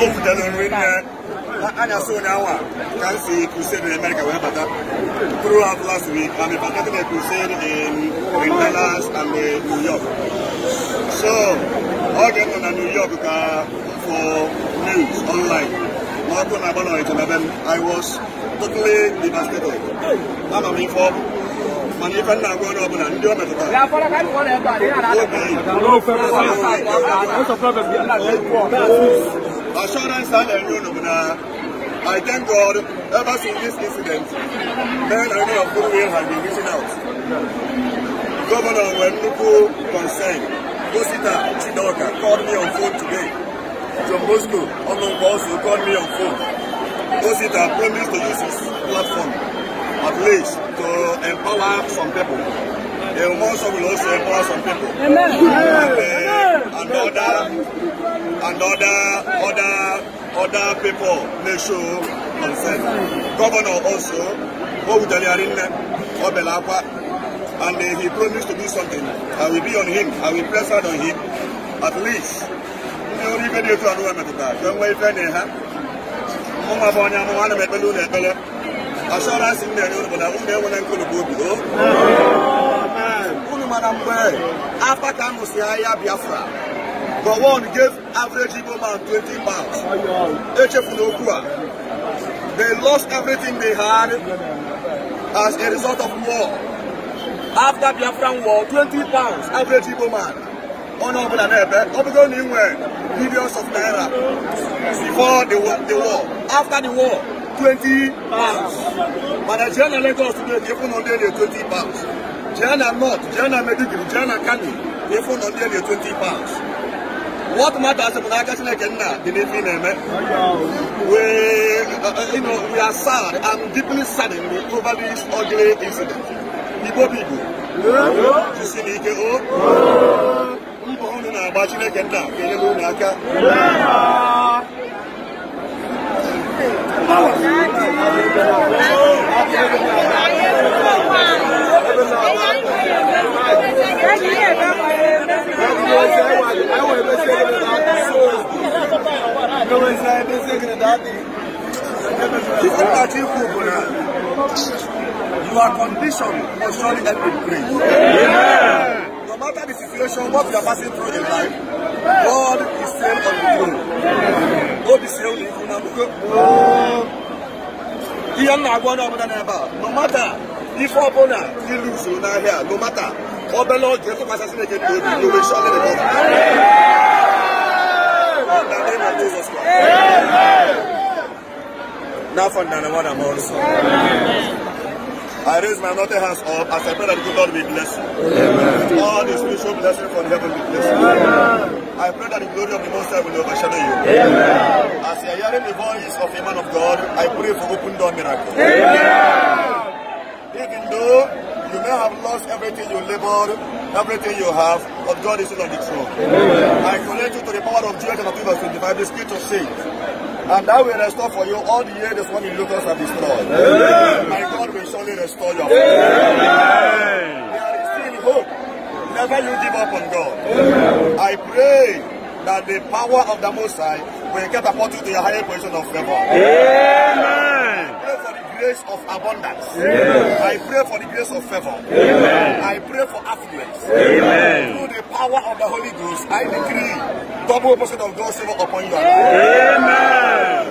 o fita n'olu nna ana so na wa kan si crusade in America wee bata throughout last week I'm invited to crusade in in Dallas and in New York so ọ ga-enọ New York ka for news online na ọkụ na-agba na ọrịta I was totally devastated anọ m ife ọkụ mana ife nna agwa onye ọbụla ndị o metụtara obi assurance and enrollment. Uh, I thank God ever since this incident, men and women of goodwill have been reaching out. Governor Wenduku concerned, Gosita Chidoka called me on phone today. John Bosco Omongbo also called me on phone. Gosita promised to use his platform at least to empower some people. The Umonso will also empower some people. Amen. And, uh, Amen and other and other other other people may show consent. Governor also, Obudali Arinne, Obelakwa, and he promised to do something. I will be on him. I will press hard on him. At least, ndị ọrụ ibe dị otu a nụwa metụtara ka nwee ife na ha mụnwa bụ onye amụma na m ekpele ụlọ ekpele asọransị m na-enye ụlọ bụ na ụmụ enwere nkụlụgbu obi o oh. unu mana mgbe afa ka m Biafra But one gave average Igbo man 20 pounds. Echefunokua. They lost everything they had as a result of war. After Biafran war, 20 pounds average Igbo man. On over and ebe, obigo ni nwe millions of naira before the war, the war. After the war, 20 pounds. But the Nigerian Lagos today, they even on daily 20 pounds. Jana North, Jana Medigiri, Jana Kani, they even on daily 20 pounds. What matters in Nagasile Kenna, we, uh, uh, you know, we are sad, I'm deeply saddened over this ugly incident. Igbo people, you see me, If not that you people, uh, you are conditioned for surely help in grace. Amen. No matter the situation, what you are passing through in life, God is still on the throne. God is still on the throne. Ihe m na-agwa onye ọbụla n'ebe a, no matter lose, ọbụla are here. no matter obere oge tụkwasị Chineke n'obi, you will surely recover. now for the one I'm also. Amen. I raise my nothing hands up as I pray that the Lord will bless you. Amen. With all the spiritual blessing from heaven will bless you. Amen. I pray that the glory of the Most High will overshadow you. Amen. As you are hearing the voice of a man of God, I pray for open door miracle. Amen. Even though You may have lost everything you labored, everything you have, but God is still on the throne. Amen. I connect you to the power of Joel chapter the verse of the spirit of faith. And that will restore for you all the years when the locusts have destroyed. Amen. My God will surely restore your faith. Amen. There is still hope. Never you give up on God. Amen. I pray that the power of the Most High will catapult you to your higher position of favor. Amen grace of abundance. Amen. I pray for the grace of favor. Amen. I pray for affluence. Amen. Through the power of the Holy Ghost, I decree double portion of God's favor upon you. Amen.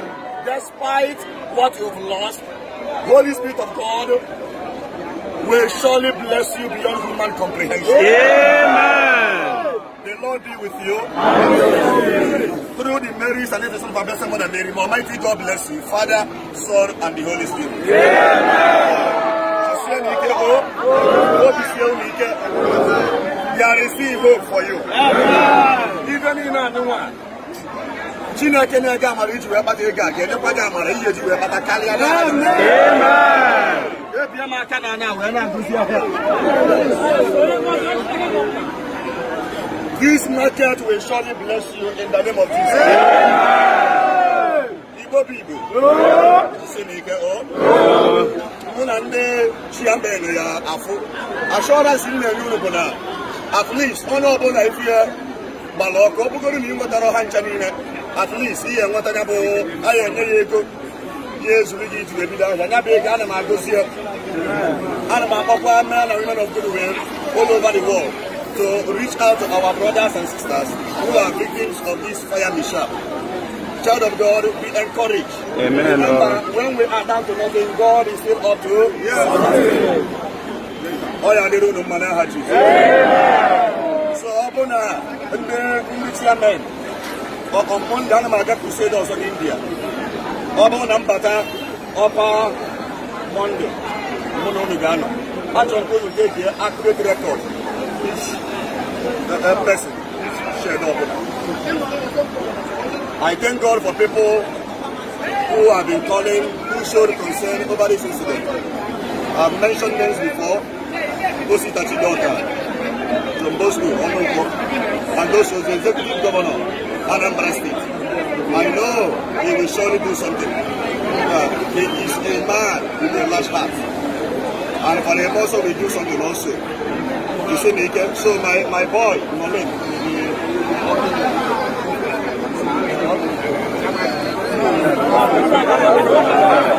Despite what you've lost, Holy Spirit of God will surely bless you beyond human comprehension. Amen be with you through the Marys and intercession of our blessed Mother Mary. May Almighty God bless you, Father, Son, and the Holy Spirit. Amen. There oh. is still hope for you. Even in Anuwa. Chineke na-ege amara iji wee kpata ego a ga-enyekwa gị amara ihe ji wee kpata karịa ebie m aka na anya wee na-agụzi ahịa This market will surely bless you in the name of Jesus. Igbo Bibo. Si n'ike o. Oh. Mụ na ndị chiambenu ya afụ. Assurance m na-enye unu bụ na at least onye ọbụla ifu ya gbara ọkụ ọ bụgoro na ị nwetara ọha ncha niile at least ihe nwetanya bụ anyị enye ya ego ya ezuru gị iji ebido ahịa ya bụ ego ana m agozi ya ana m akpọkwa men and women of good will all over the world to reach out to our brothers and sisters who are victims of this fire mishap. Child of God, be encouraged. Amen. Remember, when we are down to nothing, God is still up to Yes. Oh, yeah, they don't know man, I So, upon the English men, upon the Anamaga Crusaders in India, one, Ambata, upon Monday, I just want to take the accurate record a person shared up. I thank God for people who have been calling, who showed concern over this incident. I've mentioned names before, Gosi Tachidota, from Bosco, Onoko, and those was the executive governor, Anambra State. I know he will surely do something. Uh, he is a man with a large heart. And for him also, will do something also. You see me again? So my, my boy, Malik, Thank